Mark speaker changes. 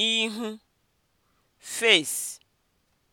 Speaker 1: ihu (face)